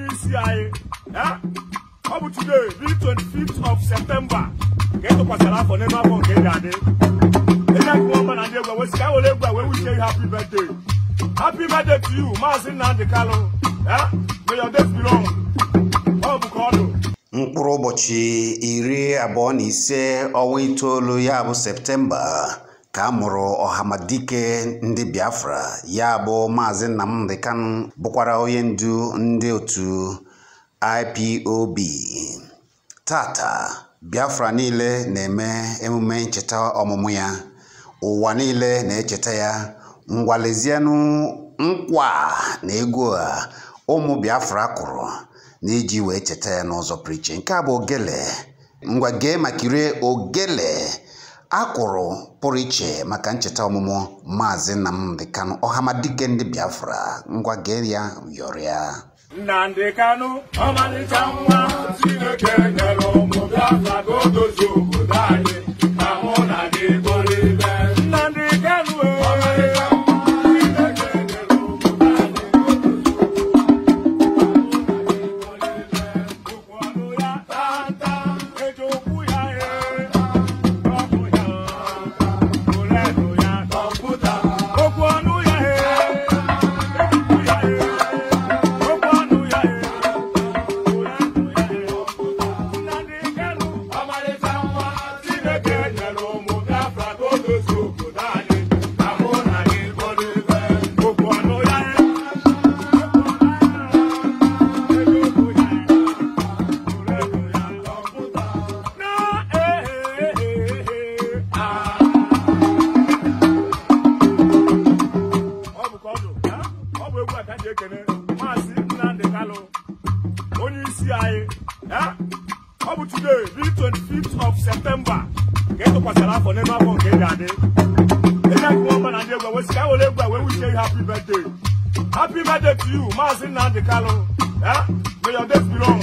onye isi anyị ọ bụ today the 25th of septemba ka e tụkwasịrị afọ n'ime afọ nke ị ga-adị ịna nke ọma na ndị egwu wesị ka were egwu wee wuchie ihe happy birthday happy birthday to you maazị nnamdị kalụ may your days be long ọ bụ ka mkpụrụ ụbọchị iri abụọ na ise ọnwa itoolu ya bụ septemba ka a mụrụ ọhamadike ndị biafra ya bụ maazị nnamdị kanụ bụkwara onye ndu ndị otu ipob tata biafra niile na-eme emume ncheta ọmụmụ ya ụwa niile na-echeta ya ngwalezienụ nkwa na ego a ụmụ biafra kụrụ n'iji wee cheta ya n'ụzọ prichi, nke a bụ ogele ngwa gee ma kirie ogele akwụrụ pụrụ iche maka ncheta ọmụmụ maazị Nnamdi ọhama ọhamadike ndị Biafra ngwa gee ya yọrịa Nnamdi Kanu ọmalịcha nwa Chineke nyere ụmụ Biafra ka o dozie ekene maazị Nnamdị Kalụ onye isi anyị ọ bụ today b 25th of September. ka etụkwasịra afọ n'elu afọ nke ga adị enyeọma na ndị egwu wesị ka were egwu wee wish you happy birthday happy birthday to you maazị Nnamdị Kalụ may your days be long